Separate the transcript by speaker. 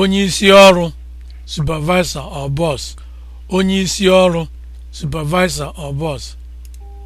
Speaker 1: onye isi ọrụ supervisor or boss onye isi ọrụ supervisor or boss